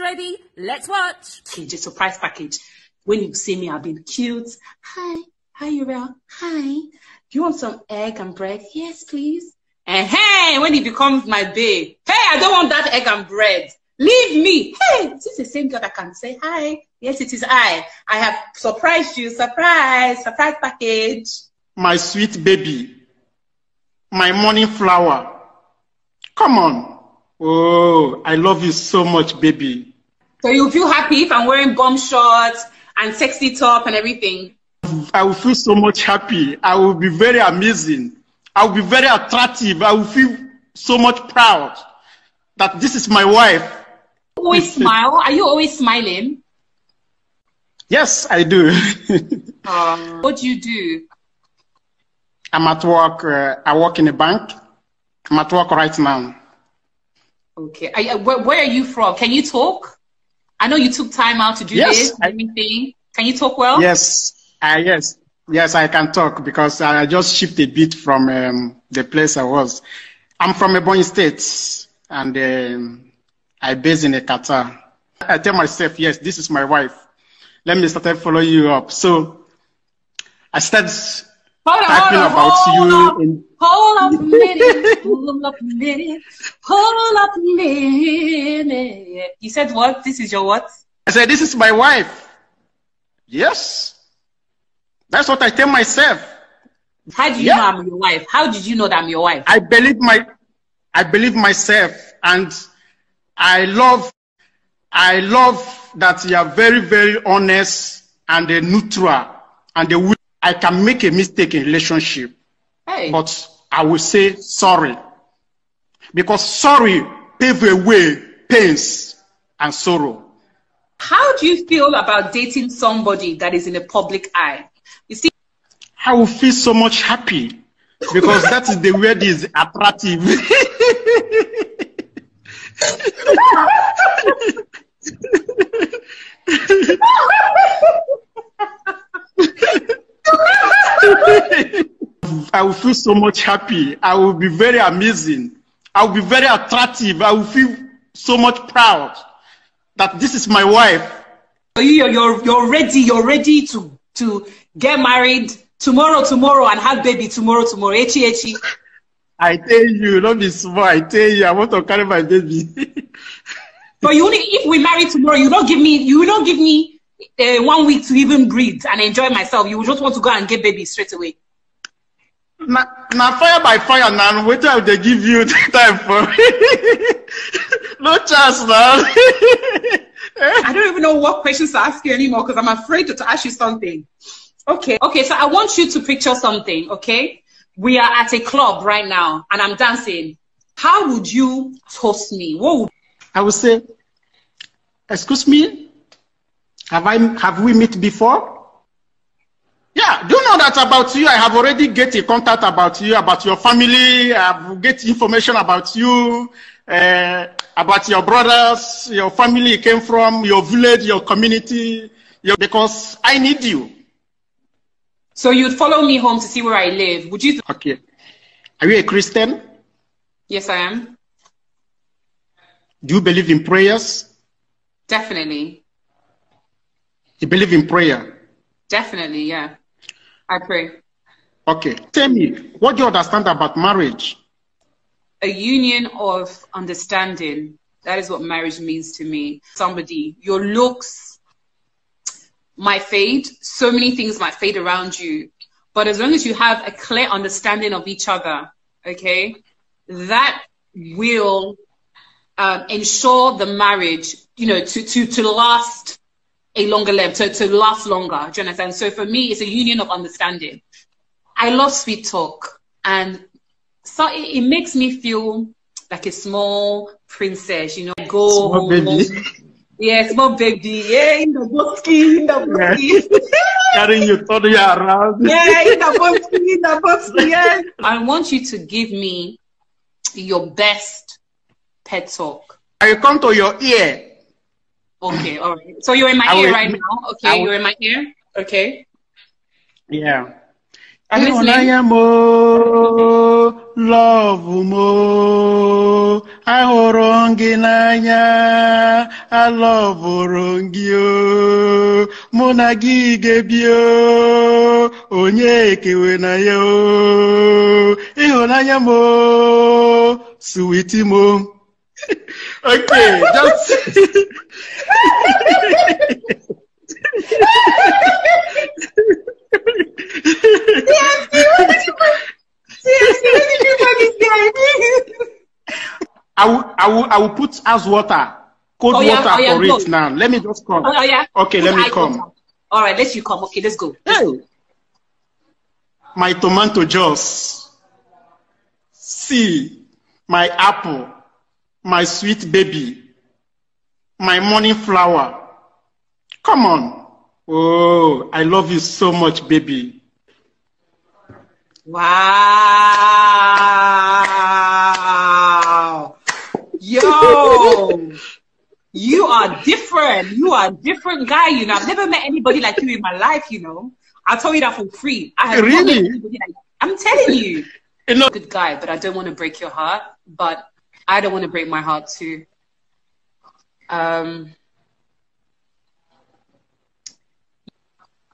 ready. Let's watch. It's surprise package. When you see me, I've been cute. Hi. Hi, Uriel. Hi. Do you want some egg and bread? Yes, please. And hey, when he becomes my babe, hey, I don't want that egg and bread. Leave me. Hey, this is the same girl that can say hi. Yes, it is I. I have surprised you. Surprise, surprise package. My sweet baby. My morning flower. Come on. Oh, I love you so much, baby. So you feel happy if I'm wearing bum shorts and sexy top and everything? I will feel so much happy. I will be very amazing. I will be very attractive. I will feel so much proud that this is my wife. Always smile. Are you always smiling? Yes, I do. um, what do you do? I'm at work. Uh, I work in a bank. I'm at work right now. Okay. Are, uh, where, where, are you from? Can you talk? I know you took time out to do yes, this. I, everything. Can you talk well? Yes. Uh, yes. Yes, I can talk because I just shifted a bit from um, the place I was. I'm from Ebony State and um, I base in Qatar. I tell myself, yes, this is my wife. Let me start following you up. So I started Hold on, talking hold on, about hold you. Up, in- hold up a minute. hold up a minute. Hold up a minute. You said what? This is your what? I said, This is my wife. Yes. That's what I tell myself. How do you yeah. know I'm your wife? How did you know that I'm your wife? I believe my I believe myself and I love I love that you are very, very honest and neutral and the I can make a mistake in relationship, hey. but I will say sorry. Because sorry pave away pains and sorrow. How do you feel about dating somebody that is in the public eye? You see, I will feel so much happy because that is the word is attractive. I will feel so much happy. I will be very amazing. I will be very attractive. I will feel so much proud that this is my wife. You're, you're, you're ready. You're ready to, to get married tomorrow, tomorrow, and have baby tomorrow, tomorrow. Echi, echi. I tell you, don't be small. I tell you, I want to carry my baby. but you only, if we marry tomorrow, you don't give me, you don't give me uh, one week to even breathe and enjoy myself. You just want to go and get baby straight away. Now, fire by fire now. What time they give you time for? no chance now. I don't even know what questions to ask you anymore because I'm afraid to, to ask you something. Okay, okay. So I want you to picture something. Okay, we are at a club right now and I'm dancing. How would you toast me? What would I would say? Excuse me. Have I have we met before? Yeah, do you know that about you? I have already get a contact about you, about your family. I've get information about you, uh, about your brothers, your family you came from, your village, your community, your, because I need you. So you'd follow me home to see where I live. Would you? okay. Are you a Christian? Yes, I am. Do you believe in prayers? Definitely. You believe in prayer? Definitely, yeah. I pray. Okay. Tell me, what do you understand about marriage? A union of understanding. That is what marriage means to me. Somebody, your looks might fade, so many things might fade around you. But as long as you have a clear understanding of each other, okay, that will um, ensure the marriage, you know, to, to, to last a longer life, to, to last longer, Jonathan. So for me, it's a union of understanding. I love sweet talk. And so it, it makes me feel like a small princess, you know, go small home, baby. Yeah, small baby. Yeah, in the bosky, in the bosky. Yeah. Carrying your toddler around. Yeah, in the bosky, in the bosky. Yeah. I want you to give me your best pet talk. I come to your ear Okay, all right. So you're in my I ear would, right now. Okay, would, you're in my ear. Okay. Yeah. I love you. ahụrụ gị n'anya alọvụrụ gị o mụ na gi onye na okay, that's. I will, I will, I will put as water, cold oh, yeah, water oh, yeah, for go. it now. Let me just come. Oh, yeah. Okay, put let me come. All right, let you come. Okay, let's go. Let's hey. go. My tomato juice. See my apple my sweet baby, my morning flower. Come on. Oh, I love you so much, baby. Wow. Yo. you are different. You are a different guy, you know. I've never met anybody like you in my life, you know. I'll tell you that for free. I have really? Like I'm telling you. you know, good guy, but I don't want to break your heart. But I don't want to break my heart too. Um,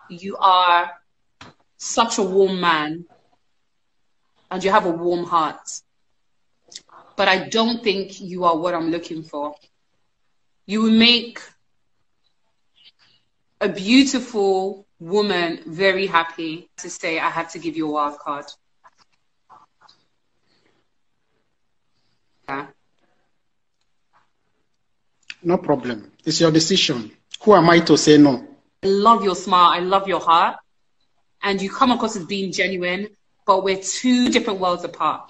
you are such a warm man and you have a warm heart. But I don't think you are what I'm looking for. You will make a beautiful woman very happy to say, I have to give you a wild card. No problem. It's your decision. Who am I to say no? I love your smile. I love your heart. And you come across as being genuine, but we're two different worlds apart.